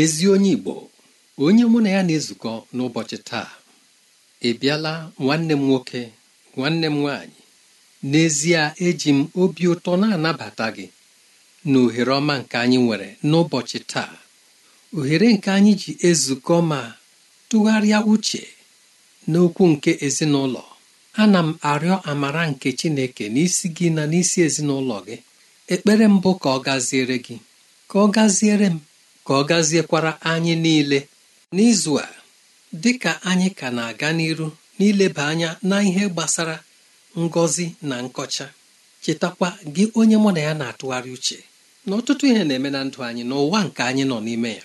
ezi onye Igbo onye mụ na ya na-ezukọ n'ụbọchị taa ị bịala nwanne m nwoke nwanne m nwaanyị n'ezie eji m obi ụtọ na-anabata gị na ohere ọma nke anyị nwere n'ụbọchị taa ohere nke anyị ji ezukọ ma tụgharịa uche n'okwu nke ezinụlọ ana m arịọ amara nke Chineke n'isi gị na n'isi ezinụlọ gị ekpere mbụ ka ọ gaziere gị ka ọ gaziere m ka ọ gaziekwara anyị niile n'izu a dị ka anyị ka na-aga n'iru n'ileba anya na ihe gbasara ngọzi na nkọcha chetakwa gị onye mụ na ya na-atụgharị uche na ọtụtụ ihe na-eme na ndụ anyị n'ụwa nke anyị nọ n'ime ya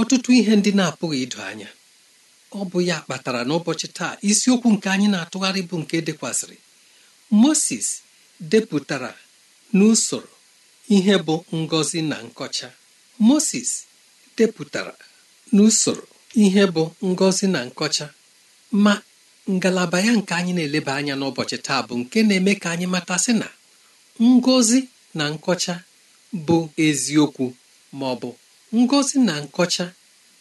ọtụtụ ihe ndị na-apụghị ido anya ọ bụ ya kpatara n'ụbọchị taa isiokwu nke anyị na-atụgharị bụ nke dekwasịrị Moses depụtara n'usoro ihe bụ ngọzi na nkọcha moses depụtara n'usoro ihe bụ ngọzi na nkọcha ma ngalaba ya nke anyị na-eleba anya n'ụbọchị taa bụ nke na-eme ka anyị matasị na ngọzi na nkọcha bụ eziokwu ma ọ bụ ngọzi na nkọcha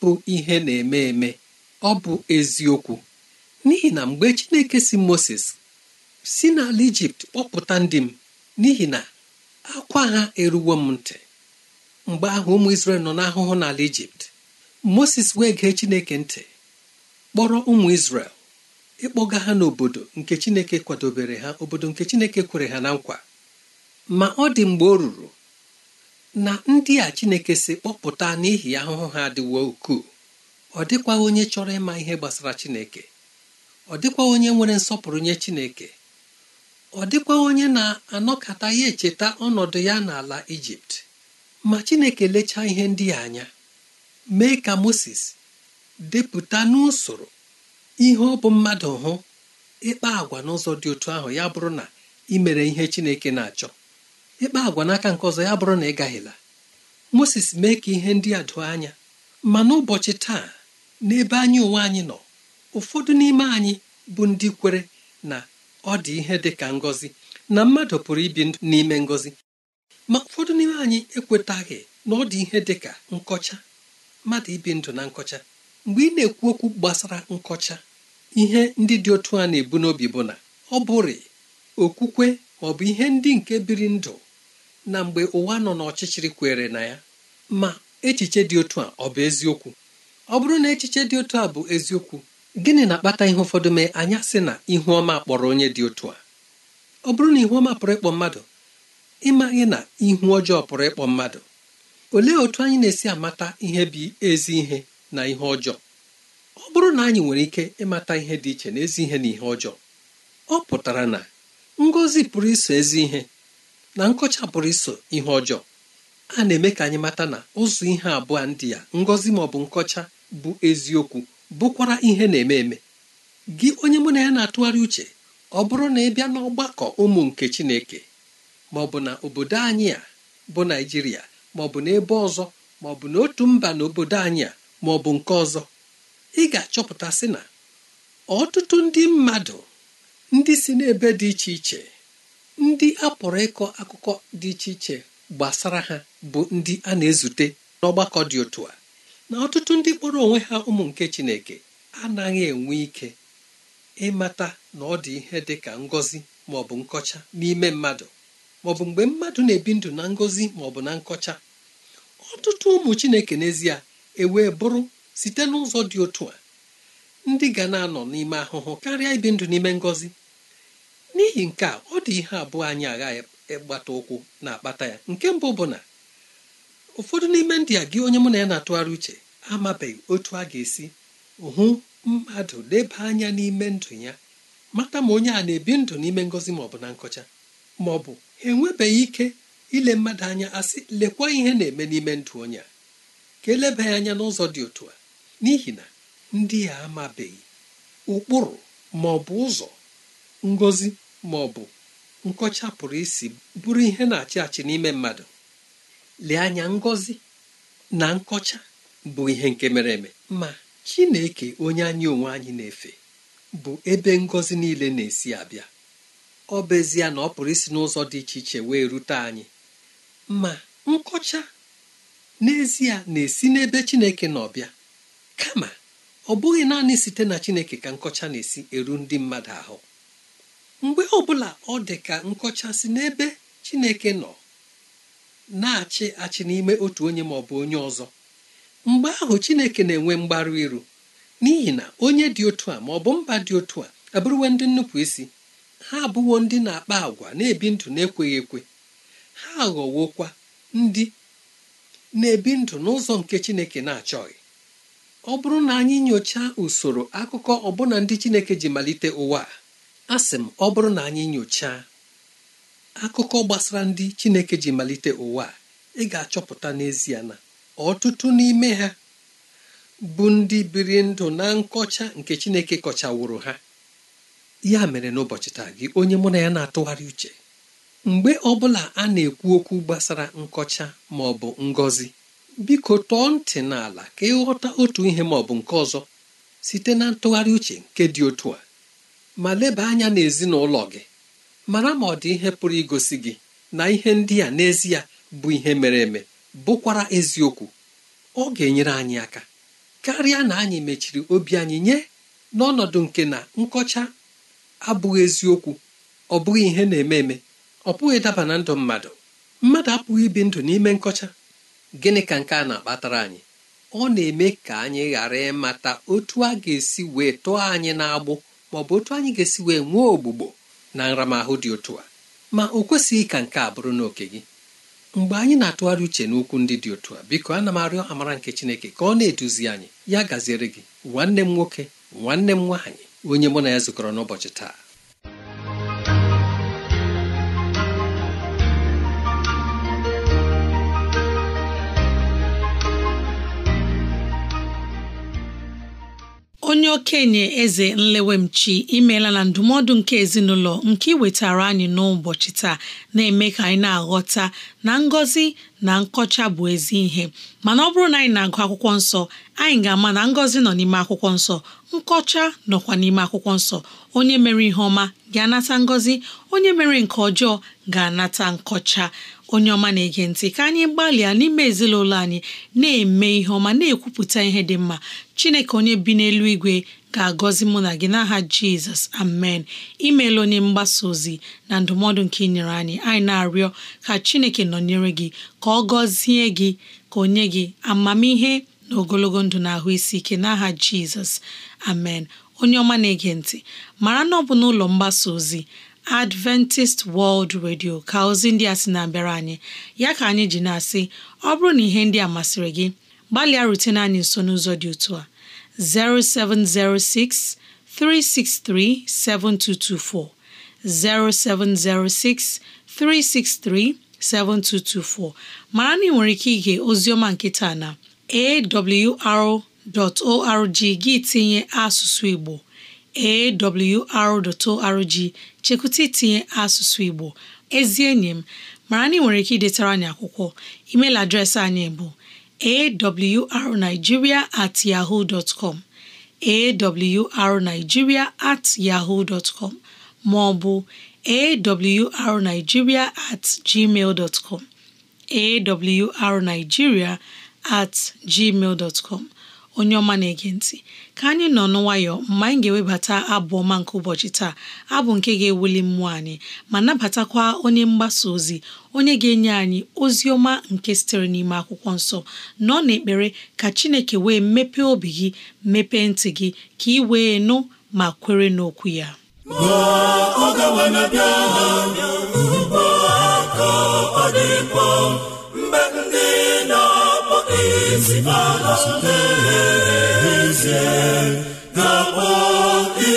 bụ ihe na-eme eme ọ bụ eziokwu n'ihi na mgbe chineke si moses si n'ala ijipt kpọpụta ndị m n'ihi na akwa ha eruwo m ntị mgbe ahụ ụmụ isrel nọ n'ahụhụ n'ala Ijipt Moses wee gee Chineke ntị kpọrọ ụmụ isrel ịkpọga ha n'obodo nke Chineke kwadobere ha obodo nke Chineke kwere ha na nkwa ma ọ dị mgbe o ruru na ndị a Chineke si kpọpụta n'ihi ahụhụ ha adịwo ukwuu ọ dịkwa onye chọrọ ịma ihe gbasara Chineke ọ dịkwa onye nwere nsọpụrụ nye Chineke ọ dịkwa onye na-anọkata ya echeta ọnọdụ ya n'ala Ijipt ma chineke lechaa ihe ndị a anya mee ka moses depụta n'usoro ihe ọ bụ mmadụ hụ ịkpa agwa n'ụzọ dị otu ahụ ya bụrụ na imere ihe chineke na-achọ ịkpa agwa n'aka nke ọzọ ya bụrụ na ị gaghịla moses mee ka ihe ndị a doo anya ma n'ụbọchị taa n'ebe anyị onwe anyị nọ ụfọdụ n'ime anyị bụ ndị kwere na ọ dị ihe dị ka ngọzi na mmadụ pụrụ ibi ndụ n'ime ngọzi ma ụfọdụ n'ime anyị ekwetaghị na ọ dị ihe dị ka nkọcha mmadụ ibi ndụ na nkọcha mgbe ị na-ekwu okwu gbasara nkọcha ihe ndị dị otu a na-ebu n'obi bụ na ọ bụrị okwukwe ọ bụ ihe ndị nke biri ndụ na mgbe ụwa nọ n'ọchịchịrị kwere na ya ma echiche dị otu a ọ bụ eziokwu ọ bụrụ na echiche dị otu a bụ eziokwu gịnị na-akpata ihe ụfọdụ mee anya sị na ihu ọma kpọrọ onye dị otu a ọ bụrụ na ihu ọma pụrụ ịkpọ mmadụ ịmaghị na ihu ọjọọ pụrụ ịkpọ mmadụ olee otu anyị na-esi amata ihe bụ ezi ihe na ihe ọjọọ ọ bụrụ na anyị nwere ike ịmata ihe dị iche na ezi ihe na ihe ọjọọ ọ pụtara na ngọzi pụrụ iso ezi ihe na nkọcha pụrụ iso ihe ọjọọ a na-eme ka anyị mata na ụzọ ihe abụọ ndị ya ngọzi ma ọ bụ nkọcha bụ eziokwu bụkwara ihe na-eme eme gị onye mụ na ya na-atụgharị uche ọ bụrụ na ị bịa n'ọgbakọ ụmụ nke Chineke ma ọ bụ na obodo anyị a bụ naijiria ma ọ bụ n'ebe ọzọ ma ọ bụ n'otu mba na obodo anyị a ma ọ bụ nke ọzọ ị ga-achọpụta sị na ọtụtụ ndị mmadụ ndị si n'ebe dị iche iche ndị a pụrụ ịkọ akụkọ dị iche iche gbasara ha bụ ndị a na-ezute n'ọgbakọ dị otu a na ọtụtụ ndị kpọrọ onwe ha ụmụ nke Chineke anaghị enwe ike ịmata na ọ dị ihe dị ka ngọzi maọbụ bụ nkọcha n'ime mmadụ maọbụ mgbe mmadụ na-ebi ndụ na ngọzi maọbụ na nkọcha ọtụtụ ụmụ chineke n'ezie ewee bụrụ site n'ụzọ dị otu a ndị ga na-anọ n'ime ahụhụ karịa ibi ndụ n'ime ngọzi n'ihi nke a ọ dị ihe abụọ anyị agha ịgbata ụkwụ na-akpata ya nke mbụ bụ na ụfọdụ n'ime ndị a gị onye mụ na ya na-atụgharị uche amabeghị otu a ga-esi hụ mmadụ leba anya n'ime ndụ ya mata ma onye a na-ebi ndụ n'ime ngọzi maọbụ na nkọcha maọbụ enwebeghị ike ile mmadụ anya asị lekwa ihe na-eme n'ime ndụ onye a ka eleba ya anya n'ụzọ dị otu a n'ihi na ndị a amabeghị ụkpụrụ ma ọ bụ ụzọ ngozi ma ọ bụ nkọcha pụrụ isi bụrụ ihe na-achị achị n'ime mmadụ lee anya ngozi na nkọcha bụ ihe nke mere eme ma Chineke onye anyị onwe anyị na-efe bụ ebe ngozi niile na-esi abịa ọ bụ ezie na ọ pụrụ isi n'ụzọ dị iche iche wee rute anyị ma nkọcha n'ezie na-esi n'ebe Chineke na ọbịa kama ọ bụghị naanị site na Chineke ka nkọcha na-esi eru ndị mmadụ ahụ mgbe ọbụla ọ dị ka nkọcha si n'ebe Chineke nọ na-achị achị n'ime otu onye ma ọ bụ onye ọzọ mgbe ahụ Chineke na-enwe mgbarụ iru n'ihi na onye dị otu a ma ọ bụ mba dị otu a abụrụwe ndị nnupụ isi ha abụwo ndị na-akpa agwa na-ebi ndụ na-ekweghị ekwe ha aghọwokwa ndị na-ebi ndụ n'ụzọ nke chineke na-achọghị ọ bụrụ na anyị nyochaa usoro akụkọ ọbụna ndị chineke ji malite ụwa a sị m ọ bụrụ na anyị nyochaa akụkọ gbasara ndị chineke ji malite ụwa ị ga-achọpụta n'ezie na ọtụtụ n'ime ha bụ ndị biri ndụ na nkọcha nke chineke kọchawụrụ ha ya mere n'ụbọchị taa gị onye mụ na ya na-atụgharị uche mgbe ọ bụla a na-ekwu okwu gbasara nkọcha ma ọ bụ ngọzi biko tọọ ntị n'ala ka ịghọta otu ihe ma ọ bụ nke ọzọ site na ntụgharị uche nke dị otu a ma leba anya n'ezinụlọ gị mara ma ọ dị ihe pụrụ igosi gị na ihe ndị a n'ezie bụ ihe mere eme bụkwara eziokwu ọ ga-enyere anyị aka karịa na anyị mechiri obi anyị nye n'ọnọdụ nke na nkọcha abụghị eziokwu ọ bụghị ihe na-eme eme ọ pụghị ịdaba na ndụ mmadụ mmadụ apụghị ibi ndụ n'ime nkọcha gịnị ka nke a na-akpatara anyị ọ na-eme ka anyị ghara ịmata otu a ga-esi wee tụọ anyị n'agbụ ma ọ bụ otu anyị ga-esi wee nwee ogbugbo na nramahụ dị otu a ma o kwesịghị ka nke a bụrụ n'oke gị mgbe anyị na-atụgharị uche n'okwu ndị dị otu a biko ana m arịọ amara nke Chineke ka ọ na-eduzi anyị ya gaziere gị nwanne m nwoke nwanne m nwaanyị onye mụ na ya zukọrọ n'ụbọchị taa onye okenye eze nlewemchi imela na ndụmọdụ nke ezinụlọ nke iwetara anyị n'ụbọchị taa na-eme ka anyị na-aghọta na ngọzi na nkọcha bụ ezi ihe mana ọ bụrụ na anyị na-agụ akwụkwọ nsọ anyị ga-ama na ngọzi nọ n'ime akwụkwọ nsọ nkọcha nọkwa n'ime akwụkwọ nsọ onye mere ihe ọma ga-anata ngọzi onye mere nke ọjọọ ga-anata nkọcha onye ọma na-ege ntị ka anyị gbalịa n'ime ezinụlọ anyị na-eme ihe ọma na-ekwupụta ihe dị mma chineke onye bi n'elu igwe ga-agọzi mụ na gị n'aha jizọs amen imeela onye mgbasa ozi na ndụmọdụ nke inyere nyere anyị anyị na-arịọ ka chineke nọnyere gị ka ọ gọzie gị ka o nye gị amamihe na ogologo ndụ na ahụ isi ike n'aha jizọs amen onye ọma na-ege ntị mara na ọ bụ n'ụlọ mgbasa ozi Adventist World Radio ka ozi ndị a sị na-abịara anyị ya ka anyị ji na-asị ọ bụrụ na ihe ndị a masịrị gị gbalịa rute na anyị nso n'ụzọ dị otu a 0706 363 7224 0706 363 7224 mara na ị nwere ike ige nkịta na awr.org gị tinye asụsụ Igbo awr.org chekwụta itinye asụsụ Igbo ezi enyi m mara na ị nwere ike idetara anyị akwụkwọ adreesị anyị bụ awrnigeria at yahoo dot com at yahoo dot com ma ọ bụ awrnigeria at gmail dot com awrnigeria at gmail dot onye ọma na-ege ntị ka anyị nọ n'nwayọ mgbe anyị ga-ewebata abụ ọma nke ụbọchị taa abụ nke ga-ewuli mmụọ anyị ma nabatakwa onye mgbasa ozi onye ga-enye anyị ozi ọma nke sitere n'ime akwụkwọ nsọ nọ n'ekpere ka Chineke wee mepee obi gị mepee ntị gị ka ị wee nụ ma kwere n'okwu ya ọ ga ezibala n'ezie na-akpọ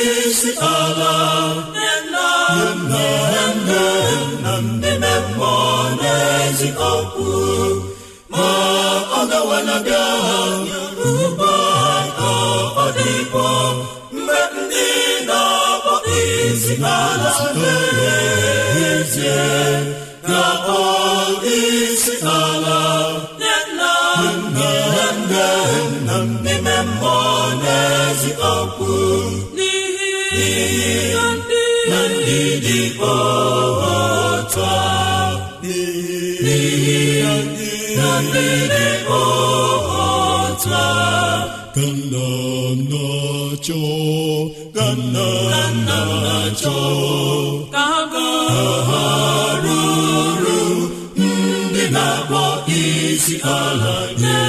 isi ala nna nna nne nna ndị mmụọ n'ezi okwu ndị na-akpọ isi ala akpọ isi ala akwa n'ihi ndị dị ọhụta ndị dị ọhụta ka nna nna chọọ ka nna ha ruru ndị na-akpọ isi ala nye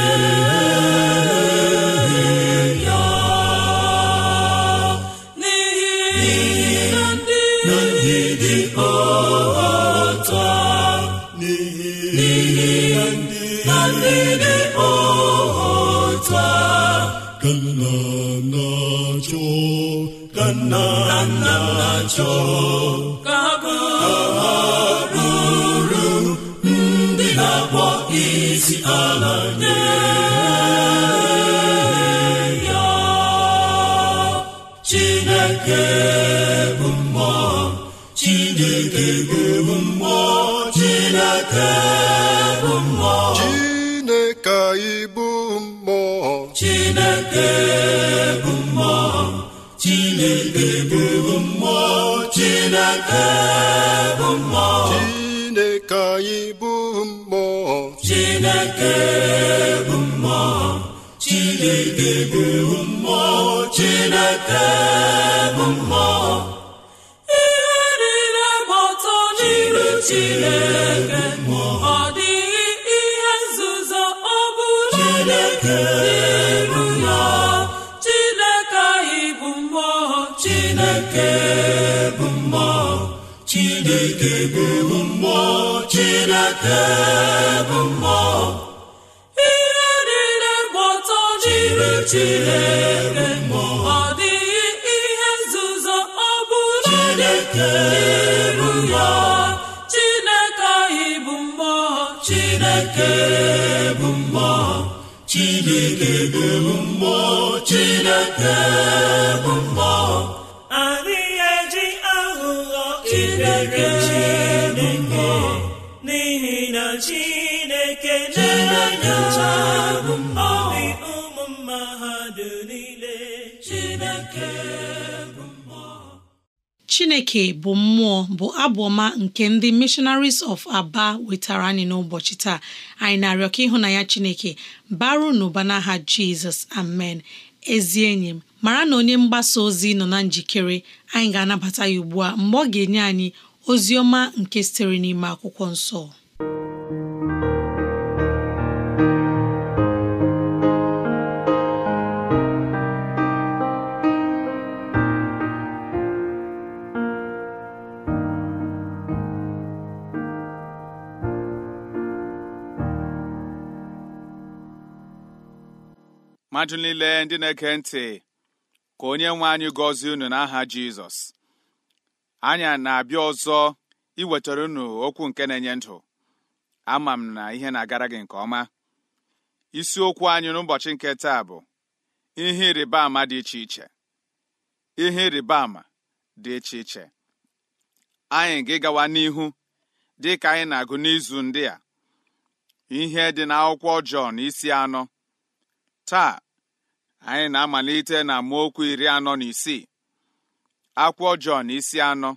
nna cho nna na cho bụ mmụọ Chineke anyị bụ mmụọ Chineke bụ mmụọ Chineke bụ mmụọ Chineke bụ mmụọ ihe niile gba n'iru Chineke ọ dịghị ihe nzuzo ọ bụrụ Chineke chineke bụ mmụọ chineke bụ mmụọ ihe niile gba ọtọ jiri chineke ọ dịghị ihe nzuzo ọ bụla n'iru ya chineke anyị bụ mmụọ chineke bụ mmụọ chineke bụ mmụọ chineke bụ mmụọ Chineke na-enye ọrị ụmụ mma niile Chineke bụ mmụọ Chineke bụ mmụọ bụ abụọma nke ndị Missionaries of Aba wetara anyị n'ụbọchị taa anyị na-arịọ ka ya Chineke baru n'ụba n'aha Jizọs amen ezi enyi m mara na onye mgbasa ozi nọ na njikere anyị ga-anabata ya ugbu a mgbe ọ ga-enye anyị ozi ọma nke sitere n'ime akwụkwọ nsọ mmadụ niile ndị na-ege ntị ka onye nwe anyị gọzie unu n'aha Jizọs anyị na-abịa ọzọ iwetara unu okwu nke na-enye ndụ ama m na ihe na-agara gị nke ọma isiokwu anyị n'ụbọchị nke taa bụ ihe ịrịba ama dị iche iche ihe ịrịba ama dị iche iche anyị ga-gawa n'ihu dị ka anyị na-agụ n'izu ndị a ihe dị n'akwụkwọ Jọn isi anọ taa anyị na-amalite na amaokwu iri anọ na isii Akwụ ọjọọ na isi anọ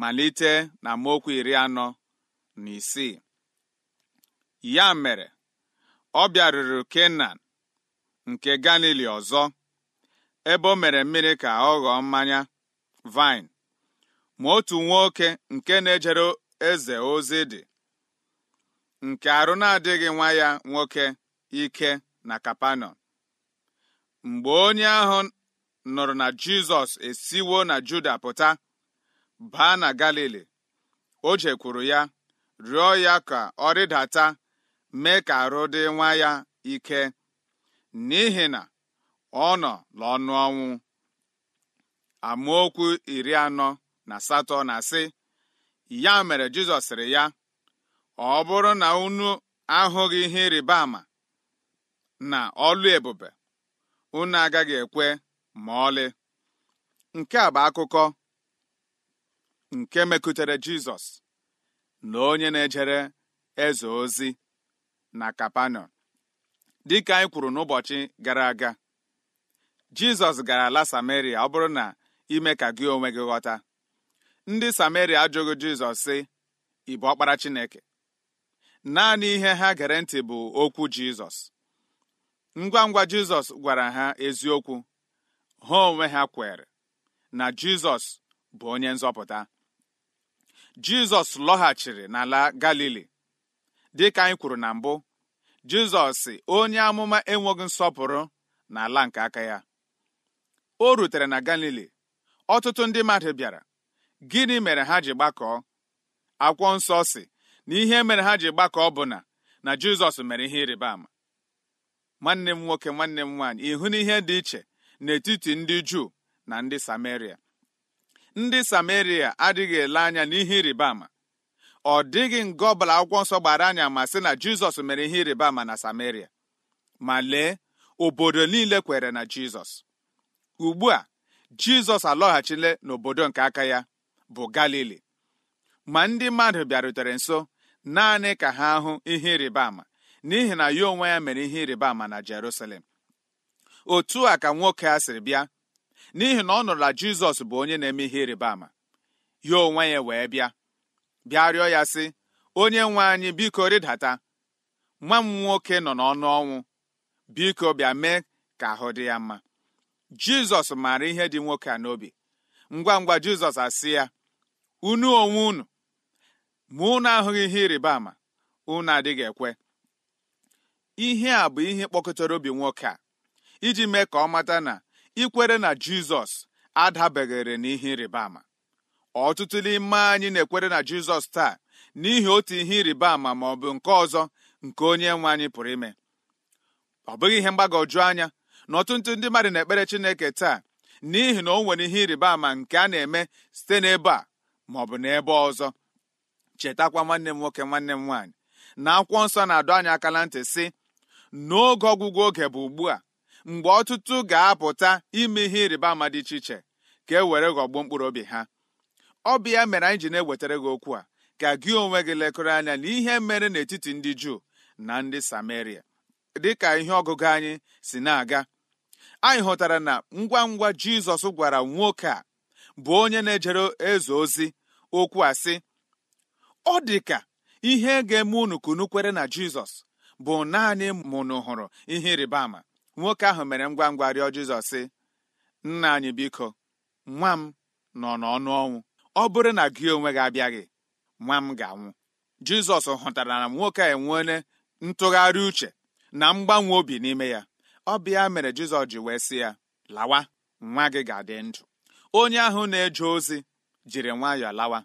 malite na amaokwu iri anọ na isii ya mere ọ bịaruru Kenan nke Galili ọzọ ebe o mere mmiri ka ọ ghọọ mmanya vine ma otu nwoke nke na-ejere eze ozi dị nke arụ na-adịghị nwa ya nwoke ike na kapanon mgbe onye ahụ nụrụ na jizọs esiwo na juda pụta baa na galili o jekwuru ya rịọ ya ka ọ rịdata mee ka arụ dị nwa ya ike n'ihi na ọ nọ n'ọnụ ọnwụ amaokwu iri anọ na asatọ na asị ya mere jizọs sịrị ya ọ bụrụ na unu ahụghị ihe ịrịba ama na ọlụ ebube unu agaghị ekwe ma ọlị nke a bụ akụkọ nke mekutere Jizọs na onye na-ejere eze ozi na Dị ka anyị kwuru n'ụbọchị gara aga Jizọs gara ala Samaria ọ bụrụ na ime ka gị onwe gị ghọta ndị Samaria ajụghị Jizọs sị ị bụ ọkpara Chineke naanị ihe ha gere ntị bụ okwu Jizọs ngwa ngwa jizọs gwara ha eziokwu ha onwe ha kwere na jizọs bụ onye nzọpụta jizọs lọghachiri n'ala galili dịka anyị kwuru na mbụ jizọs si onye amụma enweghị nsọpụrụ n'ala nke aka ya o rutere na galili ọtụtụ ndị mmadụ bịara gịnị mere ha ji gbakọọ akwụkwọ nsọ si na ihe mere ha ji gbakọọ bụ na na jizọs mere ihe ịrịba ama nwanne m nwoke nwanne m nwaanyị ịhụ na ihe dị iche n'etiti ndị juu na ndị samaria ndị samaria adịghị ele anya n'ihe ịrịba ama ọ dịghị nga ọbụla akwụkwọ nsọ gbara anya ma sị na jizọs mere ihe ịrịba ama na samaria ma lee obodo niile kwere na jizọs ugbu a jizọs alọghachila n'obodo nke aka ya bụ galili ma ndị mmadụ bịarutere nso naanị ka ha hụ ihe ịrịba ama n'ihi na ya onwe ya mere ihe ịrịba ama na Jerusalem otu a ka nwoke a sịrị bịa n'ihi na ọ nụrụ na Jizọs bụ onye na-eme ihe ịrịba ama ya onwe ya wee bịa bịa rịọ ya sị onye nwe anyị biko rịdata nwa m nwoke nọ n'ọnụ ọnwụ biko bịa mee ka ahụ dị ya mma Jizọs maara ihe dị nwoke a n'obi ngwa ngwa Jizọs asị ya unu onwe unu ma unu ahụghị ihe ịrịba ama unu adịghị ekwe ihe a bụ ihe kpọkọtara obi nwoke a iji mee ka ọ mata na ikwere na jizọs na n'ihe ịrịba ama ọtụtụ n'ime anyị na-ekwere na jizọs taa n'ihi otu ihe ịrịba ama ma ọ bụ nke ọzọ nke onye nwe anyị pụrụ ime ọ bụghị ihe mgbagwoju anya na ọtụtụ ndị mmadụ na-ekpere chineke taa n'ihi na o nwere ihe ịrịba ama nke a na-eme site n'ebe a ma ọ bụ n'ebe ọzọ chetakwa nwanne m nwoke nwanne m nwaanyị na akwụkwọ nsọ na-adọ anyị aka na ntị sị n'oge ọgwụgwụ oge bụ ugbu a mgbe ọtụtụ ga-apụta ime ihe ịrịba ama dị iche iche ka e were ghọgbuo mkpụrụ obi ha ọ bụ ya mere anyị ji na-ewetara gị okwu a ka gị onwe gị lekọrọ anya na ihe mere n'etiti ndị Juu na ndị dị dịka ihe ọgụgụ anyị si na-aga anyị hụtara na ngwa ngwa Jizọs gwara nwoke a bụ onye na-ejere eze ozi okwu a sị ọ dị ka ihe ga-eme unu kunukwere na Jizọs bụ naanị mụnụ hụrụ ihe ịrịba ama nwoke ahụ mere ngwa ngwa rịọ Jizọs sị nna anyị biko nwa m nọ n'ọnụ ọnwụ ọ bụrụ na gị onwe gị abịaghị nwa m ga-anwụ Jizọs hụtara na nwoke a enweele ntụgharị uche na mgbanwe obi n'ime ya ọ bịa mere Jizọs ji wee sị ya lawa nwa gị ga-adị ndụ onye ahụ na-eje ozi jiri nwayọọ lawa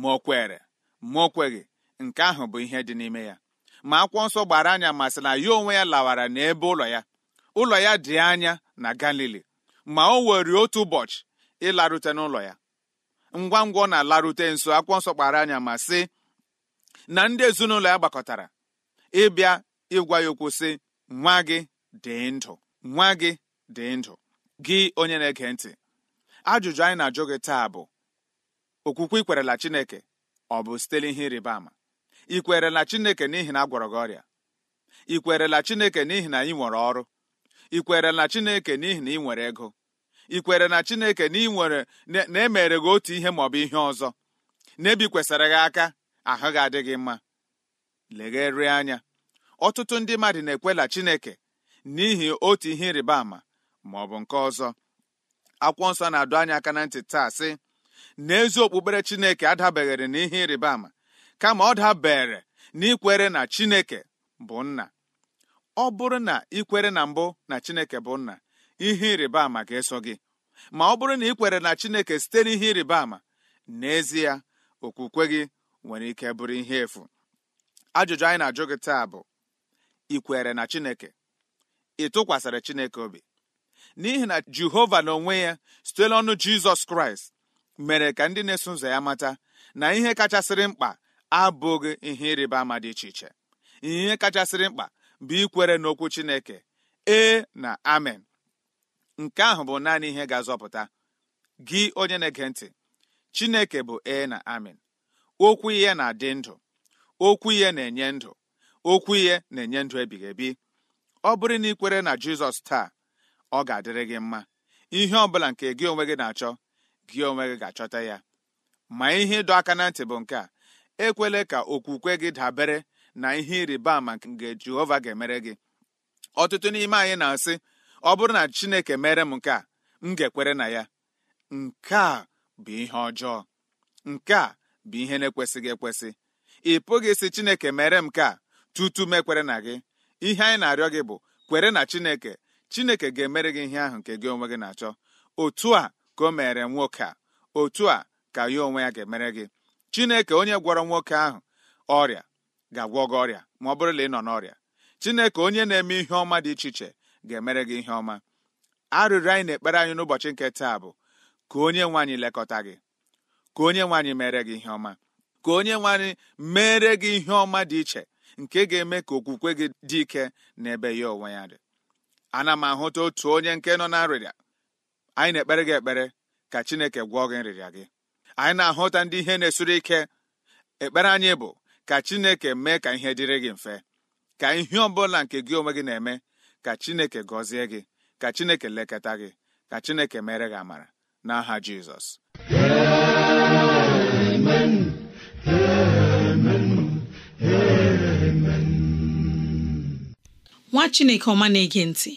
ma o kwere ma o kweghị nke ahụ bụ ihe dị n'ime ya ma akwụkwọ nsọ gbara anya masịla ya onwe ya lawara n'ebe ụlọ ya ụlọ ya dị anya na galili ma o were otu ụbọchị ịlarute n'ụlọ ya ngwa ngwa ọ na-alarute nso akwụkwọ nsọ anya ma sị na ndị ezinụlọ ya gbakọtara ịbịa ịgwa ya okwu sị nwa gị dị ndụ nwa gị dị ndụ gị onye na-ege ntị ajụjụ anyị na-ajụ gị taa bụ okwukwe ikwerela Chineke ọ bụ site n'ihe ịrịba ama ị kwerela chineke n'ihi na a gị ọrịa ị kwerela chineke n'ihi na ị nwere ọrụ ị kwerela chineke n'ihi na ị nwere ego ị kwere na chineke na ị nwere na emere gị otu ihe maọbụ ihe ọzọ na-ebikwesịrị gị aka ahụ gị adị mma legherie anya ọtụtụ ndị mmadụ na-ekwela chineke n'ihi otu ihe ịrịba ama maọbụ nke ọzọ akwụkwọ nsọ na-adụ anya aka na ntị taa sị na ezi okpukpere chineke adabeghịrị ihe ịrịba ama kama ọ dabere n'ikwere na chineke bụ nna ọ bụrụ na ikwere na mbụ na chineke bụ nna ihe ịrịba ama ga-eso gị ma ọ bụrụ na ị kwere na chineke site n'ihe ịrịba ama n'ezie okwukwe gị nwere ike bụrụ ihe efu ajụjụ anyị na-ajụ gị taa bụ ị kwere na chineke ị chineke obi n'ihi na jehova na onwe ya site n'ọnụ jizọs kraịst mere ka ndị na-eso ụzọ ya mata na ihe kachasịrị mkpa abụghị ihe ịrịba ama dị iche iche ihe kachasịrị mkpa bụ ikwere n'okwu Chineke ee na amen nke ahụ bụ naanị ihe ga-azọpụta gị onye na-ege ntị Chineke bụ ee na amen okwu ihe na-adị ndụ okwu ihe na-enye ndụ okwu ihe na-enye ndụ ebighị ebi ọ bụrụ na ikwere na Jizọs taa ọ ga-adịrị gị mma ihe ọ bụla nke gị onwe gị na-achọ gị onwe gị ga-achọta ya ma ihe ịdọ aka na ntị bụ nke a ekwele ka okwukwe gị dabere na ihe ịrịba ama nke jehova ga-emere gị ọtụtụ n'ime anyị na-asị ọ bụrụ na chineke mere m nke a m ga-ekwere na ya nke a bụ ihe ọjọọ nke a bụ ihe na-ekwesịghị ekwesị ị pụghị ịsị chineke mere m nke a tutu m ekwere na gị ihe anyị na-arịọ gị bụ kwere na chineke chineke ga-emere gị ihe ahụ nke gị onwe gị na-achọ otu a ka o mere nwoke a otu a ka ya onwe ya ga-emere gị chineke onye gwọrọ nwoke ahụ ọrịa ga-agwọ gị ọrịa ma ọ bụrụ na ị nọ n'ọrịa chineke onye na-eme ihe ọma dị iche iche ga-emere gị ihe ọma arịrịọ anyị na-ekpere anyị n'ụbọchị nke taa bụ ka onye nwaanyị lekọta gị ka onye nwanyị mere gị ihe ọma ka onye nwanyị mere gị ihe ọma dị iche nke ga-eme ka okwukwe gị dị ike n'ebe ya onwe ya dị ana m ahụta otu onye nke nọ na nrịrịa anyị na-ekpere gị ekpere ka chineke gwọọ gị nrịrịa gị anyị na-ahụta ndị ihe na-esuru ike ekpere anyị bụ ka chineke mee ka ihe dịrị gị mfe ka ihe ọ bụla nke gị onwe gị na-eme ka chineke gọzie gị ka chineke lekọta gị ka chineke mere gị amara n'aha jizọs amen amen amen nwa chineke ọma na-ege ntị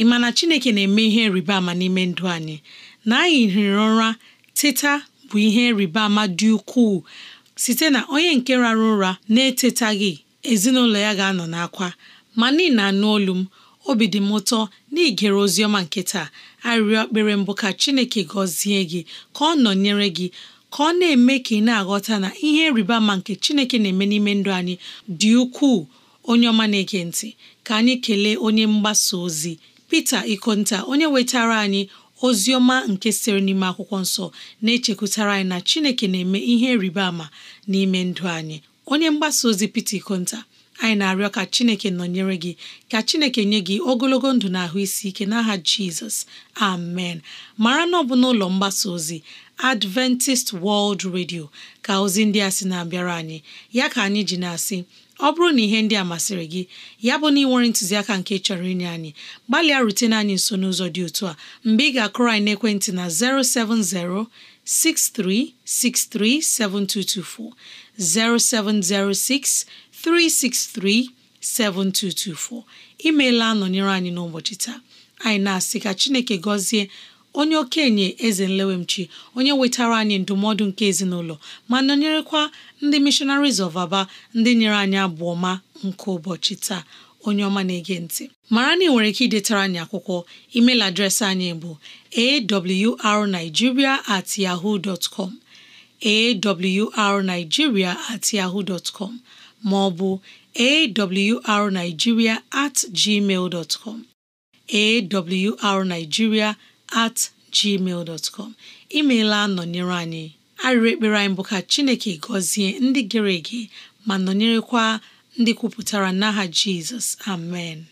ị ma na chineke na-eme ihe rịba ama n'ime ndụ anyị na anyị hiri ụra teta bụ ihe rịba ama dị ukwuu site na onye nke rara ụra na-etetaghị ezinụlọ ya ga-anọ n'akwa ma n'ihi na anụ olu m obi dị m ụtọ n'igere ozi ọma nke taa arịrịọ ekpere mbụ ka Chineke gọzie gị ka ọ nọnyere gị ka ọ na-eme ka ị na-aghọta na ihe rịba ama nke Chineke na-eme n'ime ndụ anyị dị ukwuu onye ọma na-ege ntị ka anyị kelee onye mgbasa ozi pete Ikonta onye wetara anyị ozi nke sịrị n'ime akwụkwọ nsọ na-echekwutara anyị na Chineke na-eme ihe rịba ama n'ime ndụ anyị onye mgbasa ozi peter Konta anyị na-arịọ ka Chineke nọnyere gị ka Chineke nye gị ogologo ndụ na ahụ isi ike n'aha Jizọs amen mara na ọ bụ n'ụlọ mgbasa ozi Adventist World Radio ka ozi ndị a sị na-abịara anyị ya ka anyị ji na-asị ọ bụrụ na ihe ndị a masịrị gị ya bụ na ị ntụziaka nke chọrọ inye anyị gbalịa rutene anyị nso n'ụzọ dị otu a mgbe ị ga-akụrọ anyị n'ekwentị na 070 7224 0706 7224 imeela nọnyere anyị n'ụbọchị taa anyị na-asị ka Chineke gọzie onye okenye eze nlewemchi onye wetara anyị ndụmọdụ nke ezinụlọ ma nọnyerekwa ndị missionaries of Aba ndị nyere anyị abụọ ma nke ụbọchị taa onye ọma na-ege ntị mara na ị nwere ike idetara anyị akwụkwọ email adreesị anyị bụ arigiria at yahoo dot com awrnigeria at yahoo dot com ma at gmail dot com at gmail dot com imeela nọnyere anyị arịrị ekpere anyị bụ ka Chineke gọzie ndị gere ege ma nọnyerekwa ndị kwupụtara n'aha Jizọs amen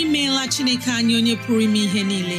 imeela Chineke anyị onye pụrụ ime ihe niile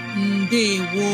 ndewo